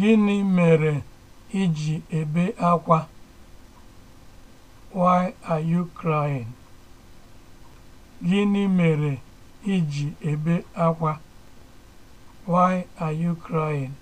Gịnị mere i ji ebe akwa? Why are you crying? Why are you crying?